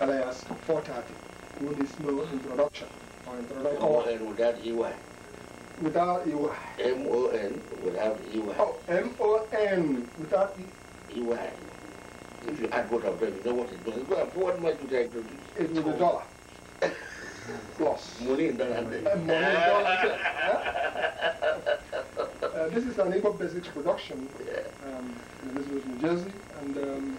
alias 430 who needs no introduction or introduction. M-O-N without E-Y. Without without E-Y. Oh, M-O-N without If you add both of them, you know what it does. Well, what much would I introduce? It will be dollar. Plus. Money in dollar. Eh? Uh, money in dollar. Uh, this is an Igbo basic production. Yeah. Um, this was New Jersey, and um,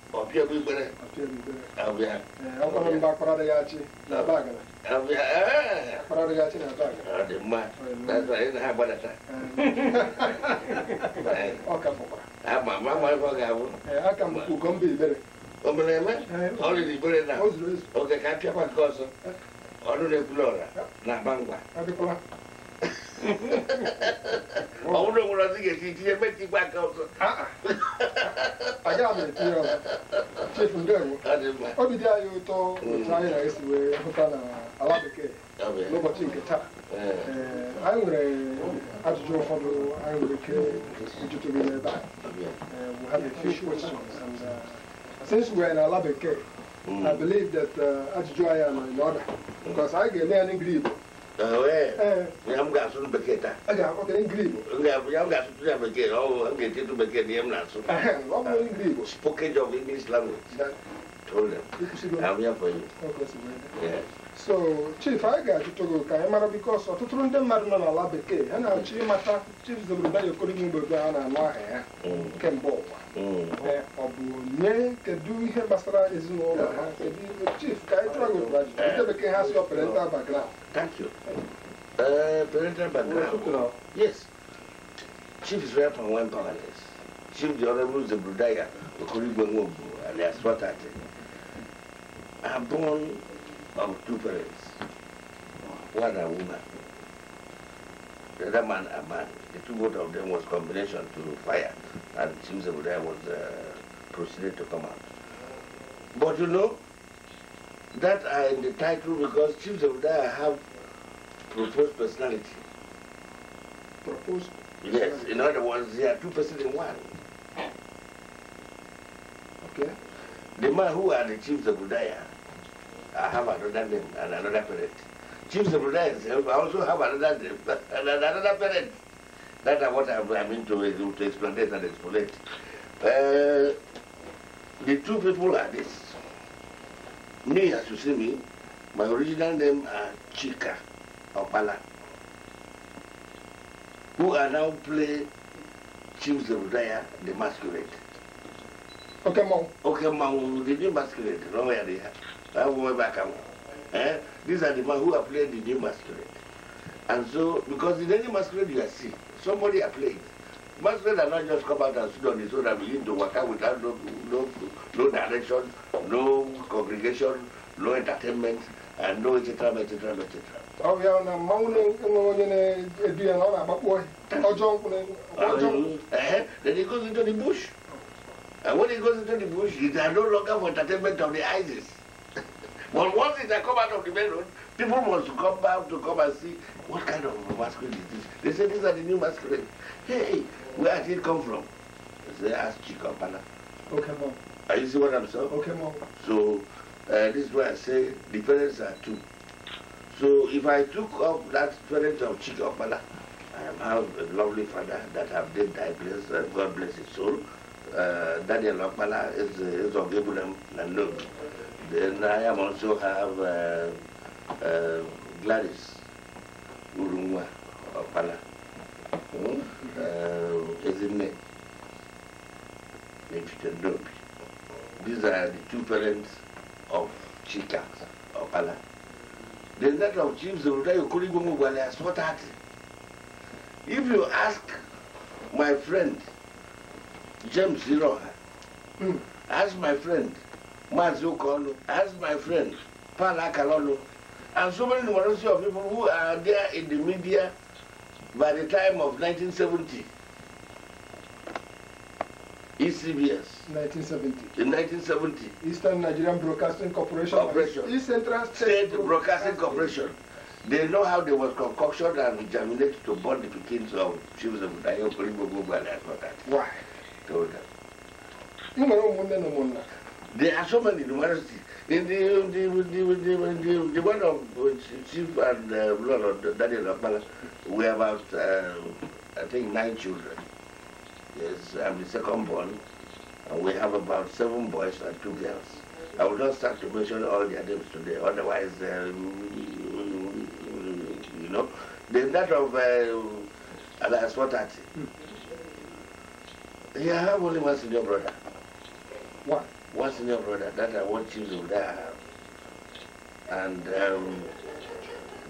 ọpịa bụ ikpere na ibere na oge ka apịakwa nke ọzọ ọrụ na-ebulu ọra na-agba ngwa òun ló ń lọ ti m. dị anyị ụtọ otu anyị na-esi wee hụta na ala bekee n'ụbọchị nke taa anyị nwere ajụjụ ụfọdụ anyị nwere ike ijụtụrụ n'ebe a we have a few questions and uh, since we are in ala bekee I believe that ajụjụ anyị nọ in order because anyị ga-eme ya n'igiri Yam ga sun beke ta. Aga ko kene grib. Nga yam ga sun ya beke o ang gete tu beke ni yam na sun. Wa mo in grib. Spoken of English language. Told them. Am ya for you. Yes. so chief anyị ga-ajụtụ gị ka anyị mara bikos ọtụtụ ndị mmadụ nọ n'ala bekee ha na-achọ ịmata chief Zebrudaya Okoroigwe mgbe a na-anụ aha ya kemgbe ụwa ọ bụ onye kedu ihe gbasara ezinụlọ ha kedu chief ka anyị chọọ gị ajụjụ ndị bekee ha si parental background thank you uh, parental background yes chief is right from one chief the honorable Zebrudaya Okoroigwe Nwogbu alias Swatati are born of two parents. One a woman. The other man a man. The two both of them was combination to fire. And James Abudai was uh, proceeded to come out. But you know, that are in the title because Chiefs of have proposed personality. Proposed? Yes, in other words, they are two persons in one. Okay. The man who are the Chiefs of Daya I have another name and another parent. Chiefs of I also have another name and another parent. That is what i mean to, to explain it and explain uh, the two people are this. Me, as you see me, my original name are Chika Opala, who are now play Chief Zebudaya, the masquerade. Okay, Mom. Okay, Mom, the new masquerade, no where they are. Ah, eh? These are the man who are playing the new masquerade. And so, because in any masquerade you are see, somebody are playing. Masquerade are not just come out and sit on the throne and begin to work out without no, no, no direction, no congregation, no entertainment, and no etc. etc. etc. Oh yeah, mmanwụ na-enwe onye na-edu ya na ọ na-agbakpọ ọjọọ jump. then he goes into the bush and when he goes into the bush it is no longer for entertainment of the ISIS but once it had come out of the main road, people must come back to come and see what kind of masquerade is this. They say these are the new masquerade. Hey, where did it come from? They ask Chikopana. Okay, mom. Are you see what I'm saying? Okay, mom. So uh, this is why I say the parents are two. So if I took up that parent of Chikopana, I have a lovely father that have did die bless, uh, God bless his soul. Uh, Daniel Okpala is, uh, is of Ibrahim Nandog. Then I am also have uh, uh, Gladys Urumwa Opala, hmm? uh, Ezine Nechitendobi. These are the two parents of Chika Opala. Then that of Chief Zorutayo Kurigumu what that. If you ask my friend, James Ziroha, mm. ask my friend, Mazi as my friend, Pala Kalolo, and so many numerosity of people who are there in the media by the time of 1970. ECBS. 1970. In 1970. Eastern Nigerian Broadcasting Corporation. Corporation. East Central State, State Broadcasting, Broadcasting Corporation. They know how they was concocted and germinated to burn the pickings of chiefs of Dayo, Kuribo, Gugu, and that. Why? Told them. There are so many In the, the, the, the, one of uh, Chief and uh, Lord Daniel Akbala, we have about, uh, I think, nine children. Yes, I'm the second born, and we have about seven boys and two girls. I will not start to mention all their names today, otherwise, um, you know. Then that of uh, Alas Watati. Hmm. Yeah, I have only one senior brother. One what's in your brother that I want you to have. And um,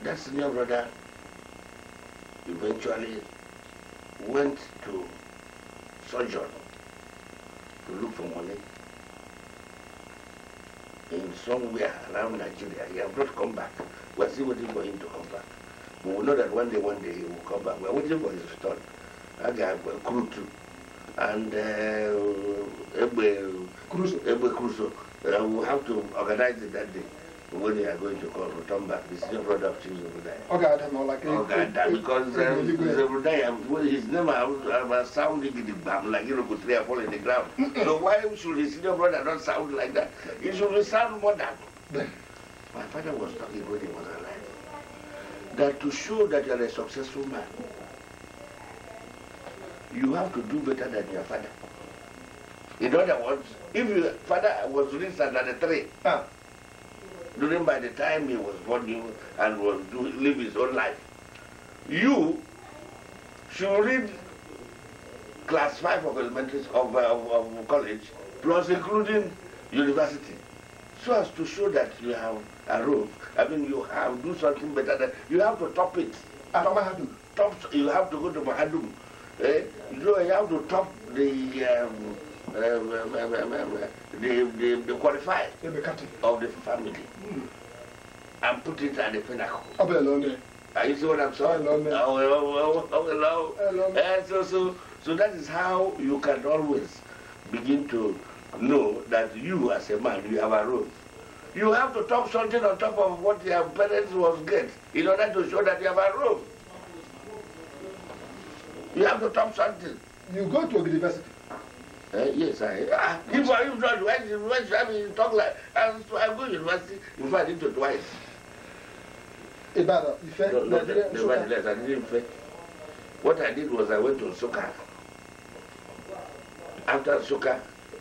that senior brother eventually went to sojourn to look for money in somewhere around Nigeria. He has not come back. We are still waiting for him to come back. we know that one day, one day he will come back. We are waiting for his return. That guy will crew too and uh, Egbe Crusoe. Uh, we have to organize it that day when you are going to call return back. This is your brother of Chief Zebudai. Okay, I don't know, like oh, God, that, because um, Zebudai, well, his name was sounding in the bam, like you know, could three or four in the ground. so why should his senior brother not sound like that? He should sound more than. My father was talking when he was alive. That to show that you are a successful man, you have to do better than your father. In other words, if your father was raised under the tree, huh? during by the time he was born you and was do, live his own life, you should read class 5 of elementary of, uh, of, of college plus including university so as to show that you have a roof. I mean, you have do something better than you have to top it. Ah, top, top, you have to go to Mahadum you have to top the um, the, the, the qualifier of the family mm. and put it at the pinnacle. Are you see what I'm saying? Oh, oh, oh, hello. Uh, so, so, so that is how you can always begin to know that you as a man, you have a role. You have to top something on top of what your parents was get in order to show that you have a role. You have to talk something. You go to a university. Uh, yes, I. Ah, if I even try to why should I be talk like and so I go to university in fact I did it twice. Ibadan, Ife, Nigeria, Nsukka. Nevertheless, I didn't Ife. What I did was I went to Nsukka. After Nsukka,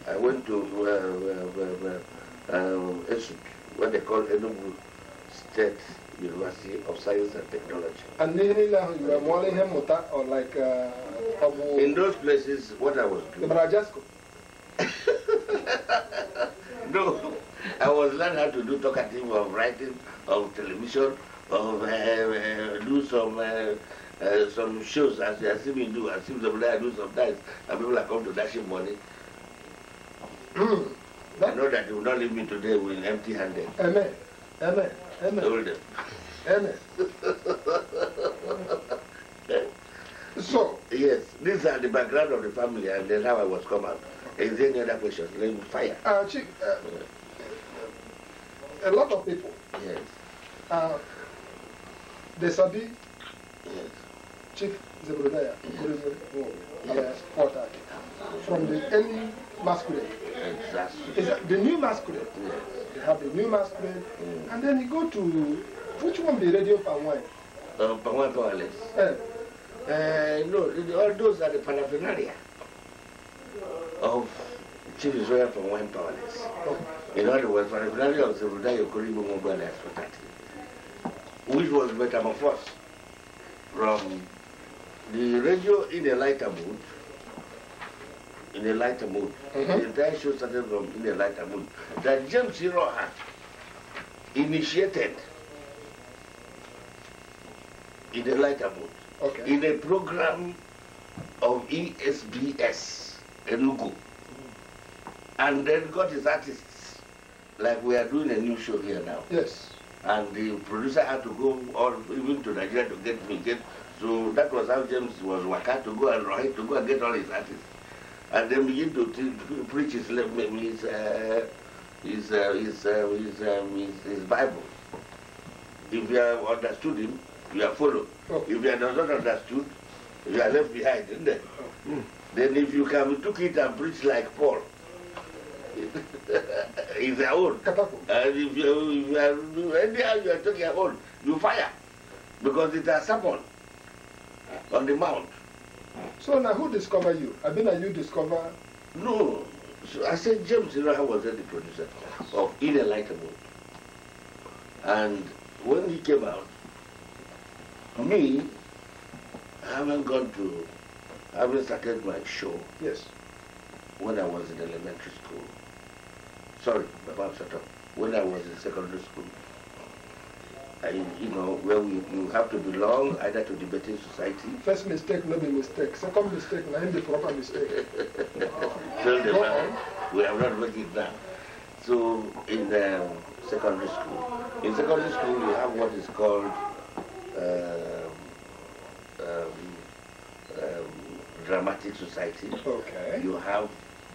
I went to uh, uh, uh, uh, uh, what they call Enugu State University of Science and Technology. And you are or like uh, In those places, what I was doing... no, I was learning how to do talkative of writing, of television, of uh, uh do some uh, uh some shows as, as if me do, as if somebody I do sometimes, and people are come to dashing money. Hmm. I know that you will not leave me today with empty handed. Amen. Amen. Hold so, yes, these are the background of the family and then how I was come out. Is there any other questions? Let me fire. Uh, Chief, uh, a lot of people. Yes. Uh, they Sabi. Yes. Chief Zebrodaya, yes. yes. from the early masculine. Is that the new masquerade? Yes. You have the new masquerade, mm. and then you go to which one be radio Pangwai? Uh, Pangwai Powerless. Uh, uh, eh, no, all those are the paraphernalia of Chief Israel Pangwai Powerless. Oh. In other words, paraphernalia of the Rudai Yokoribo Mobile Expert, which was metamorphosed from the radio in a lighter mood Mm-hmm. in a lighter mood. The entire show started from in a lighter mood. That James Siroha initiated in a lighter mood. Okay. In a program of ESBS, Enugu. Mm. And then got his artists, like we are doing a new show here now. Yes. And the producer had to go all even to Nigeria to get me. Get, so that was how James was waka to go and Rohit to go and get all his artists and then begin to preach his his uh, his, uh, his, uh, his, um, his, his Bible. If you have understood him, you are followed. Oh. If you are not understood, you are left behind, isn't it? Oh. Hmm. Then if you can took it and preach like Paul, it's your own. And if you, if you are anyhow you are talking old. you fire because it has someone on the mount. So now who discovered you? I mean, you discover? No. So I said James Iraha was the producer of Inelitable. And when he came out, me, I haven't gone to, I haven't started my show. Yes. When I was in elementary school. Sorry, my mom shut up. When I was in secondary school and you know where we, you have to belong either to debating society. First mistake, not be mistake. Second mistake, not the proper mistake. wow. Till the man, we have not made it So in the um, secondary school, in secondary school you have what is called um, um, um dramatic society. Okay. You have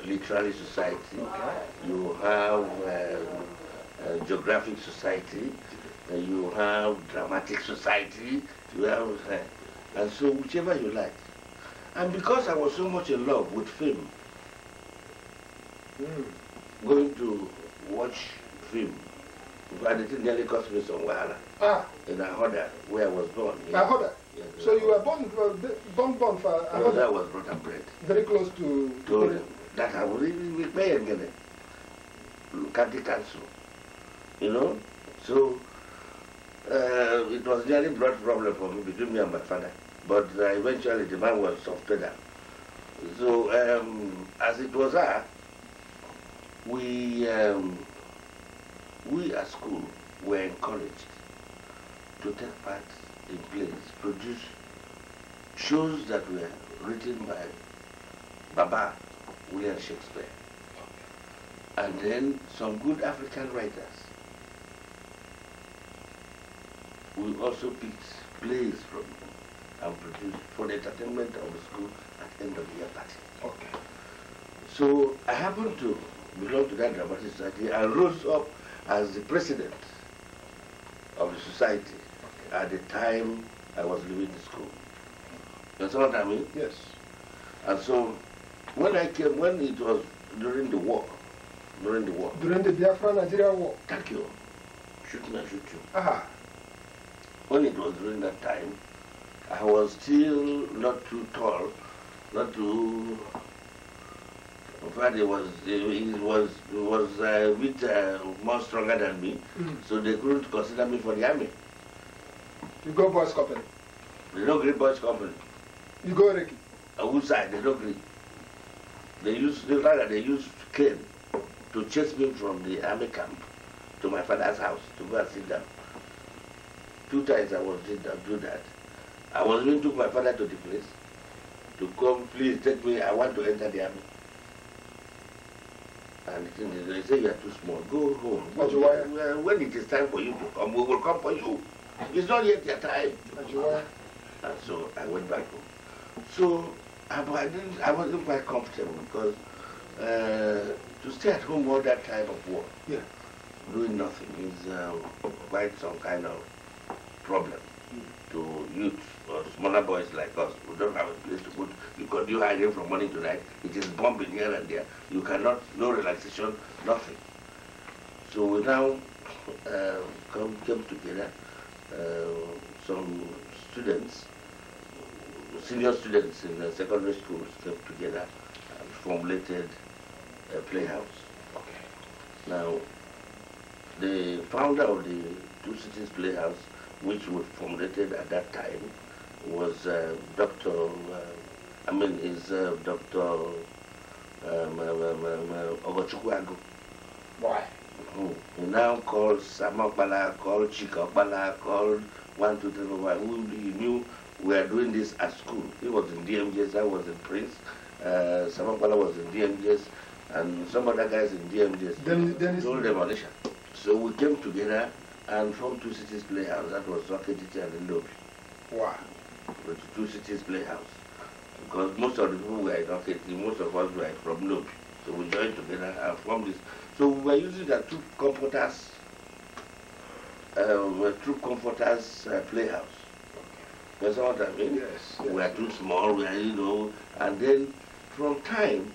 literary society. Okay. You have um, uh, geographic society you have dramatic society, you have, uh, and so whichever you like. And because I was so much in love with film, mm. going to watch film, and it nearly cost me some wahala. Ah. In Ahoda, where I was born. Yeah. Ahoda? so you were born, uh, born, born for Ahoda? was brought and bred. Very close to... To that I was even with Mayor Ngene, county council, you know? So uh, it was nearly blood problem for me between me and my father. But uh, eventually the man was off pedal. So um, as it was that, we, um, we at school were encouraged to take part in plays, produce shows that were written by Baba William Shakespeare. And then some good African writers we also picked plays from and produce for the entertainment of the school at the end of the year party. Okay. So I happened to belong to that dramatic society and rose up as the president of the society okay. at the time I was leaving the school. You understand what I mean? Yes. And so when I came, when it was during the war, during the war. During the Biafra Nigeria war. Thank you. Shoot me, I shoot you when it was during that time, I was still not too tall, not too. But it was it was it was a uh, bit uh, more stronger than me, mm. so they couldn't consider me for the army. You go boys company. They don't agree boys company. You go Ricky. side? they don't agree. They used the rather they used cane to chase me from the army camp to my father's house to go and sit down. Two times I was did to do that. I was even took my father to the place to come, please take me, I want to enter the army. And they say you are too small. Go home. Go well, when it is time for you to come, we will come for you. It's not yet your time. And so I went back home. So I, I, didn't, I wasn't quite comfortable because uh, to stay at home all that time of war, yeah. doing nothing is uh, quite some kind of problem to youth or smaller boys like us who don't have a place to put because you hiding from morning to night. It is bombing here and there. You cannot, no relaxation, nothing. So we now uh, come, came together, uh, some students, senior students in the secondary schools came together and formulated a playhouse. Okay. Now, the founder of the Two Cities Playhouse which was formulated at that time, was uh, Dr. Uh, I mean, is uh, Dr. Um, um, um, um uh, Why? Mm-hmm. He now called Samakbala, called Chikabala, called one, two, three, four, five. He knew we were doing this at school. He was in DMJS, I was in Prince. Uh, was in DMJS, and some other guys in DMJS. Then, then told demolition. So we came together and from Two Cities Playhouse, that was Rocketity and the Lobby. Wow. But Two Cities Playhouse. Because most of the people were in Rocketity, most of us were from Lobby. So we joined together and formed this. So we were using the two comforters, uh, two comforters uh, playhouse. You know what I mean? Yes, We are too small, we are, you know. And then from time,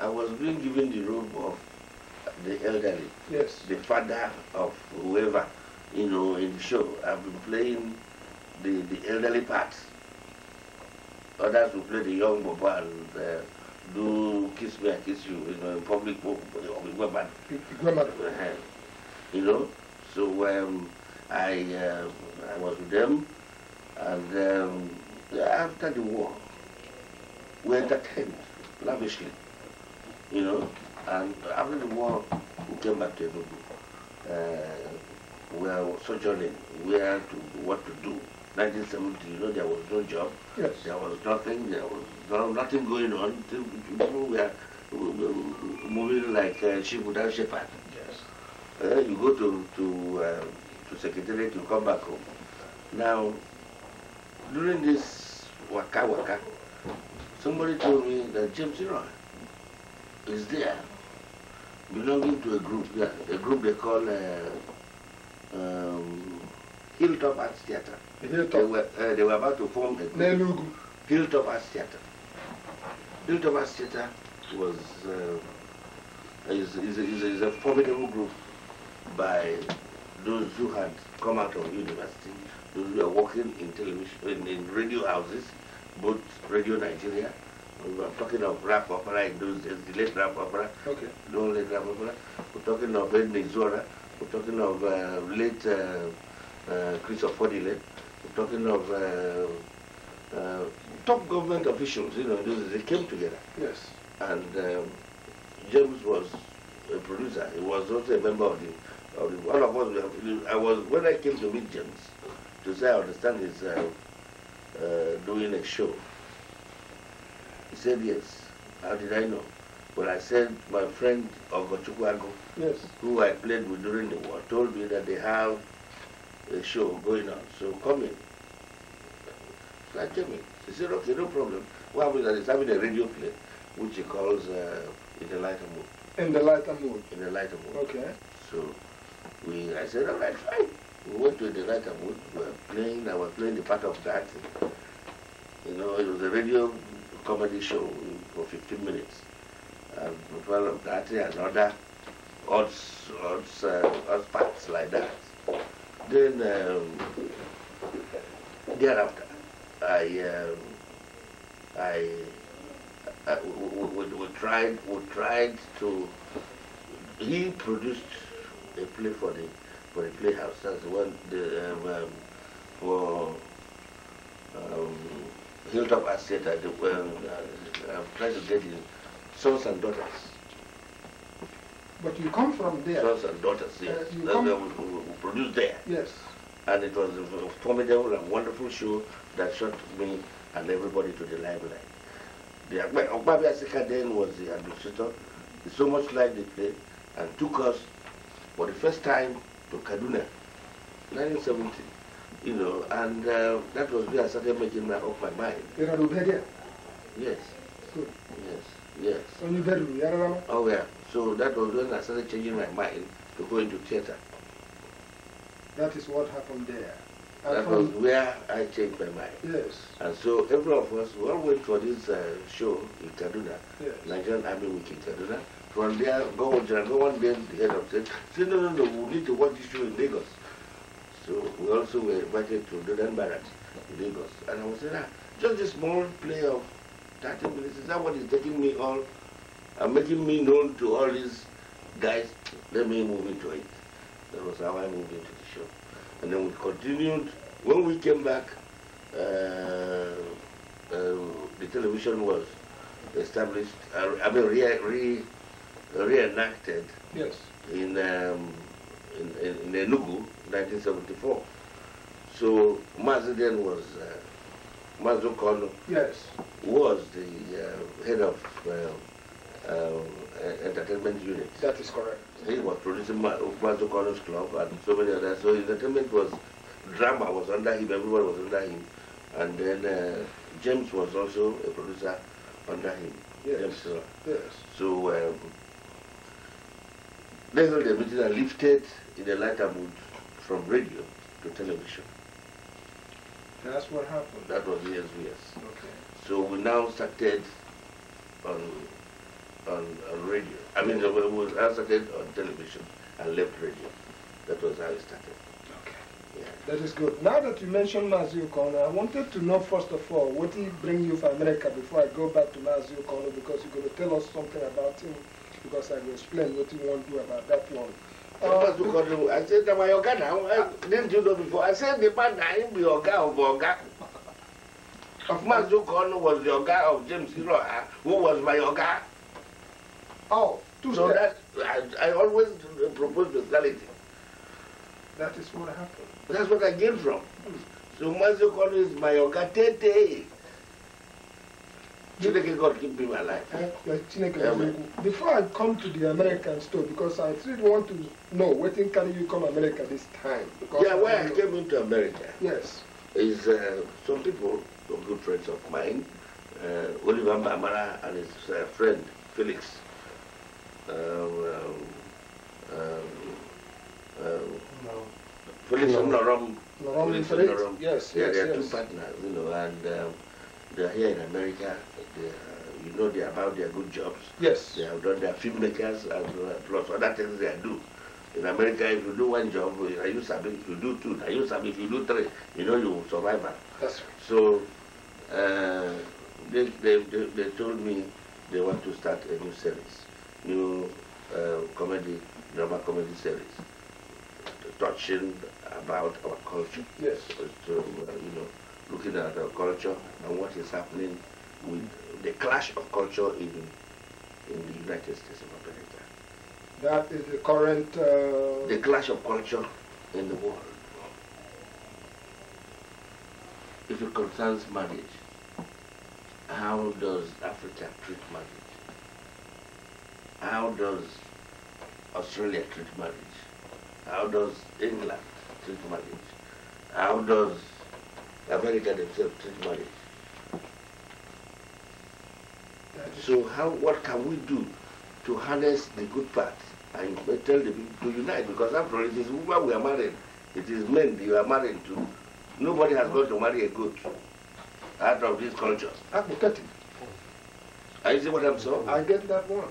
I was being given the robe of the elderly, yes. the father of whoever you know, in the show. I've been playing the, the elderly parts. Others will play the young Boba and uh, do Kiss Me, I Kiss You, you know, in public, uh-huh. you know. So um, I, uh, I was with them and um, after the war, we entertained lavishly, you know. And after the war, we came back to Enugu. Uh, we are sojourning where to what to do. 1970, you know, there was no job. Yes. There was nothing. There was no, nothing going on. People were moving like uh, sheep without shepherd. Yes. Uh, you go to to uh, to secretariat, you come back home. Now, during this waka waka, somebody told me that James Roy is there, belonging to a group. Yeah, a group they call. Uh, um, Hilltop Arts Theatre. Hilltop. They, were, uh, they were about to form a group. Hilltop Arts Theatre. Hilltop Arts Theatre was uh, is, is, is, is a formidable group by those who had come out of university, those who were working in television, in, in radio houses, both Radio Nigeria. We were talking of rap opera in those days, the late rap opera, okay. the only rap opera. We're talking of Ed Mizora. We're talking of uh, late uh, uh, Christopher Fodile. We're talking of uh, top government officials, you know, they came together. Yes. And um, James was a producer. He was also a member of the, of the all of us. I was when I came to meet James to say I understand he's uh, uh, doing a show. He said yes. How did I know? But I said my friend Ogochukwago, yes. who I played with during the war, told me that they have a show going on. So come in. So I came in. He said, okay, no problem. What happens is he's having a radio play, which he calls uh, In the Lighter Mood. In the Lighter Mood? In the Lighter Mood. Okay. So we, I said, all right, fine. We went to the Lighter Mood. We were playing, I was playing the part of that. You know, it was a radio comedy show for 15 minutes. Well, developed that and other odd, odd, uh, odd parts like that. Then um, thereafter, I, um, I, uh, we, we, we, tried, we tried to. He produced a play for the for the playhouse. That's the one um, the, um, for um, Hilltop Estate. I, um, uh, I tried to get him sons and daughters. But you come from there. Sons and daughters, uh, yes. Uh, That's where we, we, we produced there. Yes. And it was a formidable and wonderful show that shot me and everybody to the limelight. The Okbabi Asika then was the administrator. so much like they played and took us for the first time to Kaduna, 1970. You know, and uh, that was where I started making my, up my mind. You know, Yes. Yes, yes. bedroom, you Oh, yeah. So that was when I started changing my mind to go into theater. That is what happened there. that was where I changed my mind. Yes. And so every of us, we all went for this uh, show in Kaduna, yes. Nigerian Army Week in Kaduna. From there, go on, go one day, the head of said, Say no, no, no, we need to watch this show in Lagos. So we also were invited to Dodan Barracks in Lagos. And I was saying, ah, just a small play of that is that what is taking me all, uh, making me known to all these guys. Let me move into it. That was how I moved into the show. And then we continued. When we came back, uh, uh, the television was established, uh, I mean, re, re, reenacted yes. in, um, in, in, in Enugu, 1974. So Mazda then was uh, Mazzucchello yes. was the uh, head of uh, uh, entertainment unit. That is correct. He was producing Ma club and so many others. So entertainment was, drama was under him, everyone was under him. And then uh, James was also a producer under him. Yes. James uh, Yes. So um, they held a meeting and lifted in a lighter mood from radio to television. That's what happened. That was yes, yes. Okay. So we now started on on, on radio. I mean, we, we started on television and left radio. That was how it started. Okay. Yeah. That is good. Now that you mentioned Mazio Kono, I wanted to know first of all what he bring you from America before I go back to Mazio Kono because you're going to tell us something about him because I will explain what you want to do about that one. That's what you I said, am I Oga now? I, didn't you know before? I said, the man that am be Oga of Oga. Of Mazukon was the Oga of James Hiroha, ah, who was my Oga. Oh, two So steps. that, I, I always propose the neutrality. That is what happened. That's what I came from. So Mazukon is my Oga Tete. God my life. Before I come to the American store, because I still want to know what can you come America this time? Because yeah, where I came into America. Yes. Is uh, some people, some good friends of mine, uh, Oliver Mamara and his uh, friend Felix. Uh, um, um, um, no. Felix no. and Norom. Norom Felix. Norom. Yes, yes, yes. They are yes. two partners, you know, and. Um, they are here in America. They are, you know they are about their good jobs. Yes. They have done their filmmakers and uh, plus other things they do. In America, if you do one job, you sabi. If you do two, you sabi. If you do three, you know you will survive. Ah. That's right. So uh, they, they, they, they told me they want to start a new series, new uh, comedy, drama comedy series, touching about our culture. Yes. So, uh, you know, looking at our culture and what is happening with the clash of culture in, in the United States of America. That is the current... Uh... The clash of culture in the world. If it concerns marriage, how does Africa treat marriage? How does Australia treat marriage? How does England treat marriage? How does America themselves treat marriage. So how, what can we do to harness the good part and tell them to unite? Because after all, it is why we are married. It is men you are married to. Nobody has got to marry a goat out of this culture. Pathetic. I see what I'm saying? I get that one.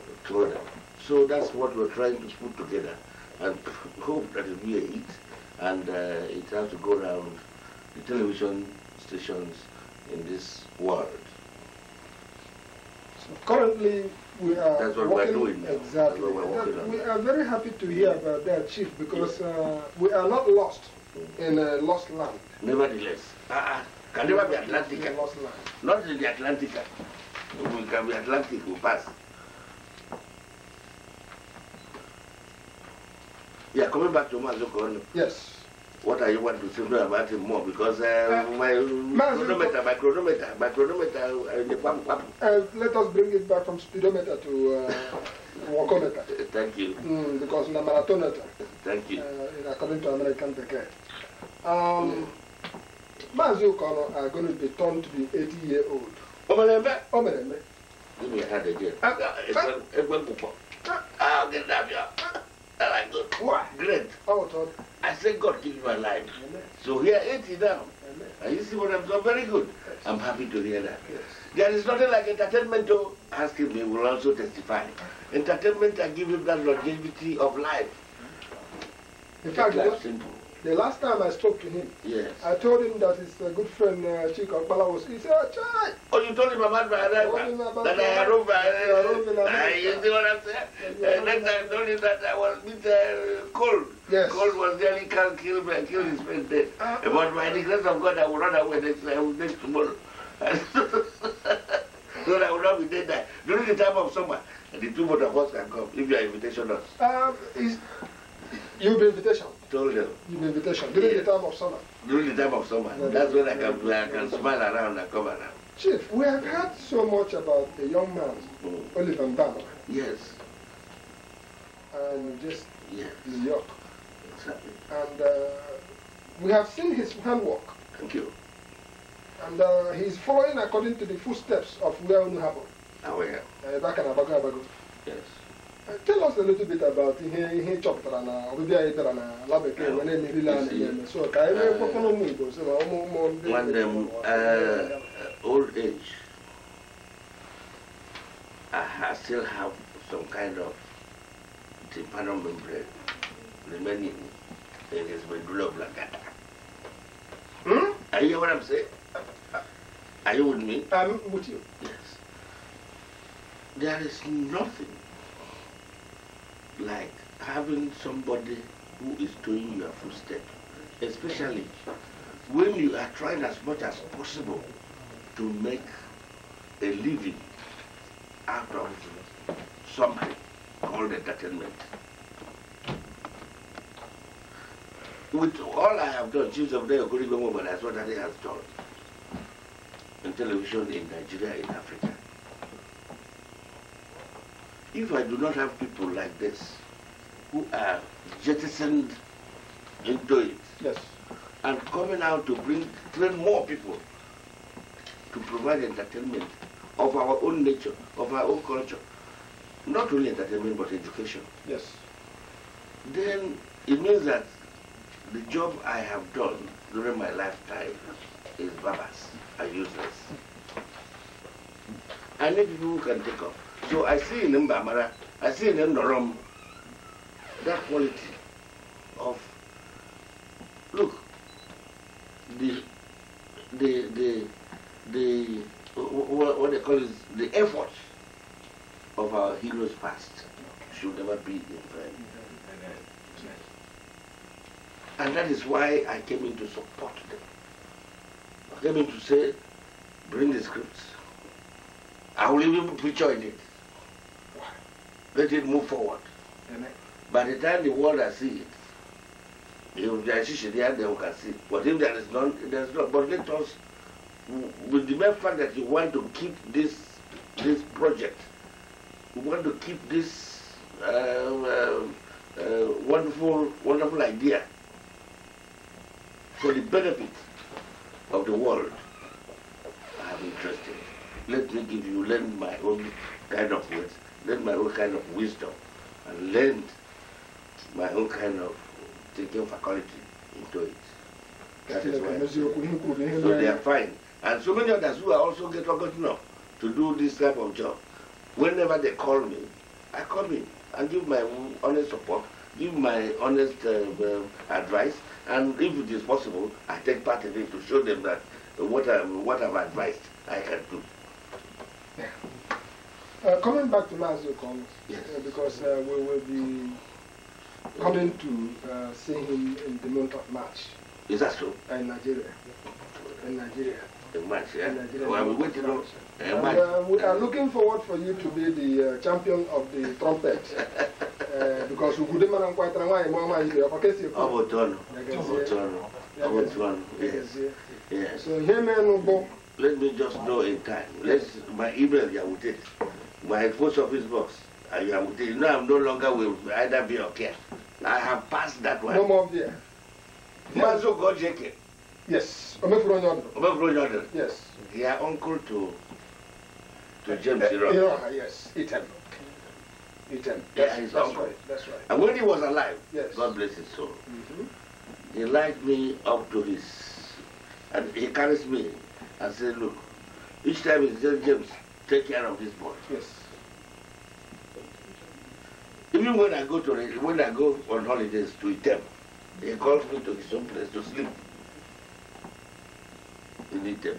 So, that's what we're trying to put together and hope that it will eat and uh, it has to go around the television stations in this world. So currently, we are That's what working, we're doing now. Exactly. We're we are very happy to hear mm. about that, Chief, because yeah. uh, we are not lost mm. in a lost land. Nevertheless, uh, uh can never be Atlantic. Lost land. Not in the Atlantic. We can be Atlantic, we pass. Yeah, coming back to Mazoko. Eh? Yes. What are you want to say about him more? Because uh, uh, my, chronometer, my chronometer, my chronometer, uh, uh, let us bring it back from speedometer to uh, walkometer. Thank you. Mm, because the marathoneter. Thank you. Uh, according to American Pekee. Um, yeah. Mazi Okono are going to be turned to be 80 year old. Omelembe, omelembe. Give me a hand again. Uh, uh, uh, uh, uh, uh, uh, uh, uh, uh, and I go, wow, great. How oh, Todd. I said, God gives my life. Amen. So here, 80 now. Amen. And you see what I'm doing? Very good. Yes. I'm happy to hear that. Yes. There is nothing like entertainment, though. Ask him, he will also testify. Entertainment I give him that longevity of life. In fact, that's simple. The last time I spoke to him, yes. I told him that his uh, good friend uh, Chico Akbala was. He said, oh, Chai! Oh, you told him about my arrival? That, I arrived by. Uh, you see what I'm saying? uh, next time I told him that I was a bit uh, cold. Yes. Cold was nearly can't kill me. I killed his friend dead. Ah. Uh, but by the grace of God, I will run away next, I would next tomorrow. so I will not be dead there. During the time of summer, the two both of us can come if your invitation us. Um, is, you be invitation told them. In invitation, during yeah. the time of summer. During the time of summer. No, That's when I can, I can smile around and come around. Chief, we have heard so much about the young man, mm. Oliver Mbama. Yes. And just yes. his york. Exactly. And uh, we have seen his handwork. Thank you. And uh, he's following according to the footsteps of Weonu Habo. Aware. Uh, back and Abago Abago. Yes tell us a little bit about ihe na na na ah. na so ka ah. eh, eh, old age I still have some kind of tympanal membrane remaining in his medulla oblongata. Hmm? Are you hear what I'm saying? Are you with me? I'm with you. Yes. There is nothing like having somebody who is doing your footstep, especially when you are trying as much as possible to make a living out of something called entertainment. With all I have done, Chiefs of Day, Okuri Gomo, but that's what I have has done in television in Nigeria, in Africa. If I do not have people like this who are jettisoned into it yes. and coming out to bring train more people to provide entertainment of our own nature, of our own culture, not only entertainment but education. Yes. Then it means that the job I have done during my lifetime is barbers and useless. I need people who can take up. So I see in him I see in him Norom, that quality of, look, the, the, the, the, what they call is the effort of our heroes past should never be in vain. And that is why I came in to support them. I came in to say, bring the scripts. I will even picture in it let it move forward. Amen. By the time the world has seen it, if there is issue there, then we can see. But if there is none, there is not. But let us, with the mere fact that you want to keep this this project, you want to keep this um, uh, uh, wonderful wonderful idea for the benefit of the world. I am interested. Let me give you lend my own kind of words learned my own kind of wisdom and learned my own kind of thinking faculty into it. That is why. So they are fine. And so many others who are also get forgotten up to do this type of job. Whenever they call me, I come in and give my honest support, give my honest uh, uh, advice, and if it is possible, I take part in it to show them that what, i what I've advised I can do. Uh, coming back to Mazu Kong, yes. Uh, because uh, we will be coming to uh, see him in the month of March. Is that true? In Nigeria. In Nigeria. In March, yeah. In Nigeria. Well, we to know. And, uh, we are looking forward for you to be the uh, champion of the trumpet. because could Ugudema and Kwaitranwa and Mama is there. I see you. Obotono. Obotono. Obotono. Yes. Yes. So, here, man, let me just know in time. Let's, my email, yeah, with my post office box. I am, you know, I'm no longer with either be or care. I have passed that one. No more there. Mazo Gojeke. Yes. Omefuro Nyondo. Yes. They are uncle to to James uh, eh, Iroha. Iroha, yes. Eton. Eton. That's, yeah, his that's uncle. Right. That's right. And when he was alive, yes. God bless his soul, mm -hmm. he liked me up to his, and he carries me and said, look, each time he said, James, take care of this boy. Yes. Even when I go to when I go on holidays to Item, he calls me to his own place to sleep in Item.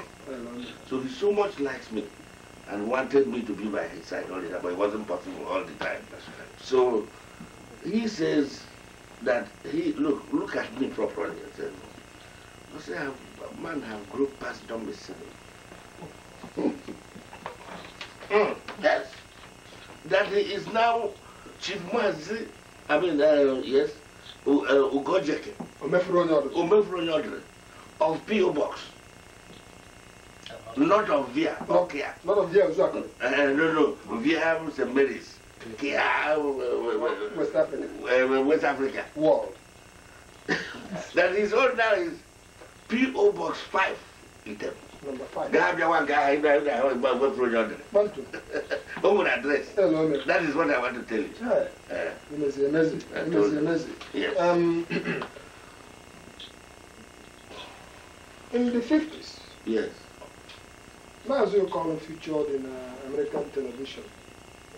So he so much likes me and wanted me to be by his side all the time, but it wasn't possible all the time. So he says that he look look at me properly and says, I say, man have grown past domicile. Mm. That's, that he is now Chief Mazi, I mean, uh, yes, uh, Ugojeke. Omefro Of P.O. Box. Not of Via, okay. Not of Via, exactly. Uh, uh no, no, Via St. Uh, Mary's. West Africa. West Africa. World. that is all now is P.O. Box 5 in Temple. Number five. Grab your one guy, go through Who would address. That is what I want to tell you. Right. Uh, you must be amazing. You must be amazing. Yes. Um, in the 50s, yes. Mazio Colin featured in uh, American television.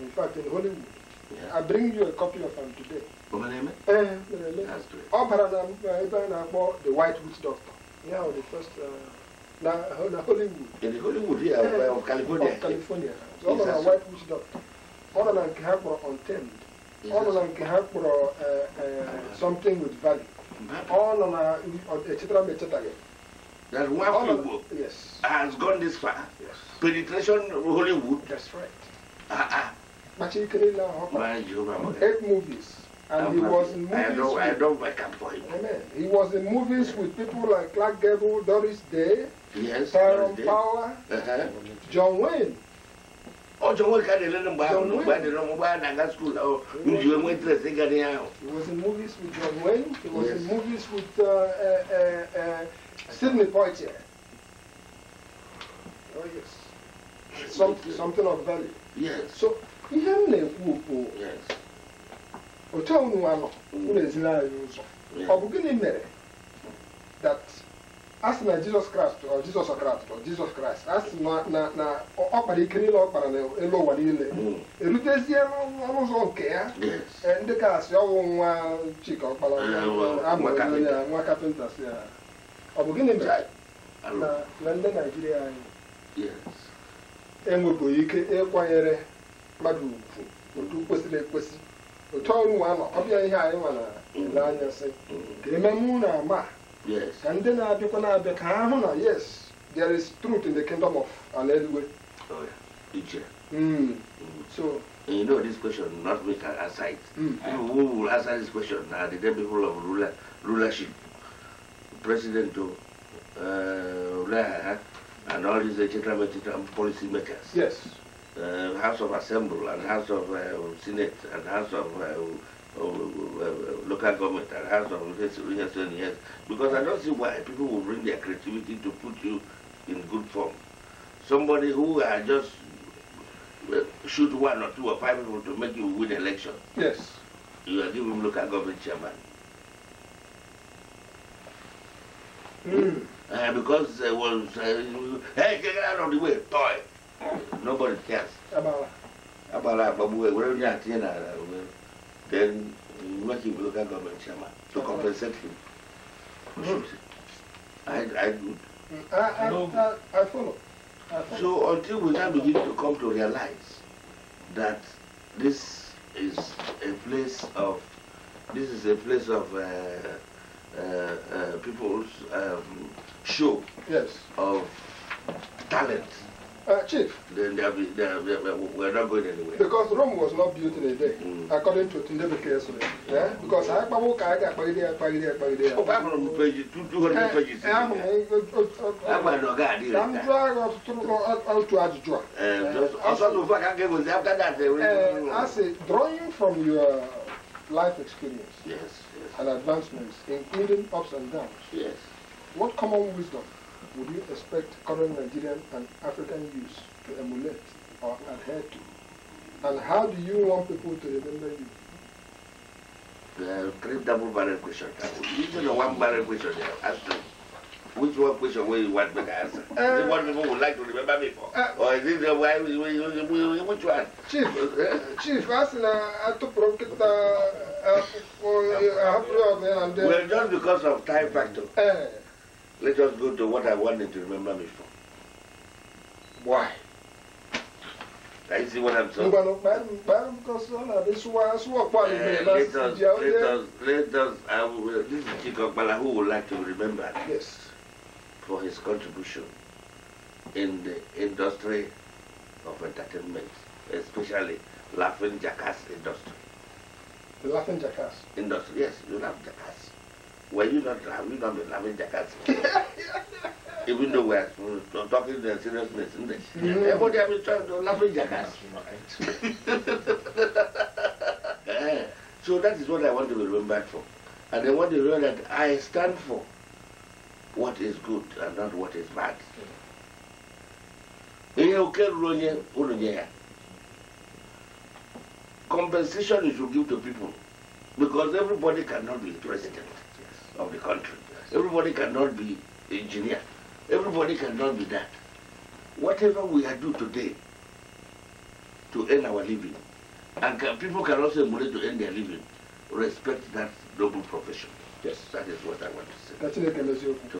In fact, in Hollywood. Yeah. I bring you a copy of him today. my Omaneme? Eh, Omaneme. Eh, That's eh. great. Opera I akpo The White Witch Doctor. Yeah, the first... Uh, na, na Hollywood. In Hollywood, yeah, yeah. Well, of California. Of California. Ọ nọ na White Witch Doctor. all of na nke ha kpọrọ Untamed. Ọ nọ na nke ha Something with Value. Ọ nọ na echetara eh, m echetaghị. Eh, that one Igbo yes. has gone this far. Yes. Penetration Hollywood. That's right. Ah, ah. Machikere na Hopper. Eight movies. And i he was in movies. I don't, I don't wake up for him. Amen. He was in movies with people like Clark Gable, Doris Day, yes, Tyrone Power, uh -huh. John Wayne. Oh, John Wayne can't let him buy him. Nobody don't buy him at school. Oh, you were interested in getting out. He was in movies with John Wayne. He was yes. in movies with uh, uh, uh, uh, Sidney Poitier. Oh, yes. Some, something of value. Yes. So, he had a whoop. Yes. otu a unu Ụlọ unu anyị ụzọ ọ bụ gịnị mere that asị na jizọs kraịst ọ jizọs kraịst ọ jizọs kraịst a sị na ọ kpara ike niile ọ kpara n'elu ụwa niile hmm. erutezie n'ọnụ ụzọ nke ya eh, ndị ka asị ọwụ nwa chika ọkpara eh, amụrụ nwa kapịnta si ya ọ bụ gịnị mere na ndị naijiria anyị enwebụghị e ike ịkwanyere mmadụ ugwu otu kwesịrị ekwesị otɔɔlu wa ma ɔbia ihe anyị nwa na mm-hmm. na ka na na na yes there is truth in the kingdom of alaeluwe oh, hmm. mm-hmm. so And you know this question not make can hmm. Mm. who will answer this question are the dead people of ruler, rulership, president to uh, and all these uh, gentlemen, policy makers. Yes uh, House of Assembly and House of uh, Senate and House of uh, local government and House of this, yes, and yes, because I don't see why people will bring their creativity to put you in good form. Somebody who are uh, just uh, shoot one or two or five people to make you win election. Yes. You are giving local government chairman. Mm. Uh, because there was, uh, hey, get out of the way, toy. Nobody cares. About About But we're not in Then working with local government chairman to compensate him. Good. Hmm. I, I good. Hmm. I, I, I, I, follow. I follow. So until we now begin to come to realize that this is a place of this is a place of uh, uh, uh, people's um, show yes. of talent. Uh, Chief. Then they'll be, they'll we're not going anywhere. Because Rome was not built in a day, mm. according to Tundebu Kesule. Yeah? Eh? Because mm. I have not walk, I can't pay there, pay there, pay Oh, eh, eh, I'm from the page, 200 pages. I'm not going to I'm trying uh, uh, to add joy. Also, the I gave was after that. Uh, I say, drawing from your life experience yes, yes. and advancements, including ups and downs, yes. what common wisdom would you expect current Nigerian and African youths to emulate or adhere to? And how do you want people to remember you? The three double barrel questions. These are one barrel question they have asked Which one question will you want me to answer? Uh, is it what people would like to remember me for? Uh, or is it the why, which one? Chief, Chief, ask na, I to provoke the, uh, uh, for, uh, uh, and then. Well, just because of time factor. Uh, let us go to what I wanted to remember me for. Why? I see what I'm saying. Uh, eh, let us, let us, let us, I will, this is Chikokbala who would like to remember yes. for his contribution in the industry of entertainment, especially laughing jackass industry. The laughing jackass? Industry, yes, you love jackass when you not have you not be having jackass? Even though we are talking the seriousness, isn't it? Everybody has been trying to laughing jackass. Right. Eh, so that is what I want to be remembered for. And I want to know that I stand for what is good and not what is bad. Compensation you should give to people because everybody cannot be president of the country. Everybody cannot be engineer. Everybody cannot be that. Whatever we are doing today to earn our living, and can, people can also money to earn their living, respect that noble profession. Yes. That is what I want to say. That's